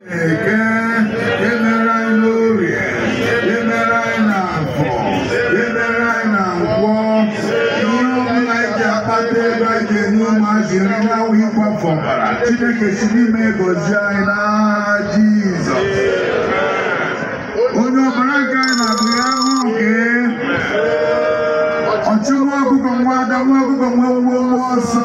eke emere anyị n'orie emere anyị n'afọ emere anyị na nkwọ ihe ọbụla anyị akpata ego enye ụmụazị ọbara chineke si n'ime gozie anyị n'agha jizọs onye ọbara nke anyị na-abụ ya nke ọchụ nwa ọgụgọ nwa ada nwa nwa ọsọ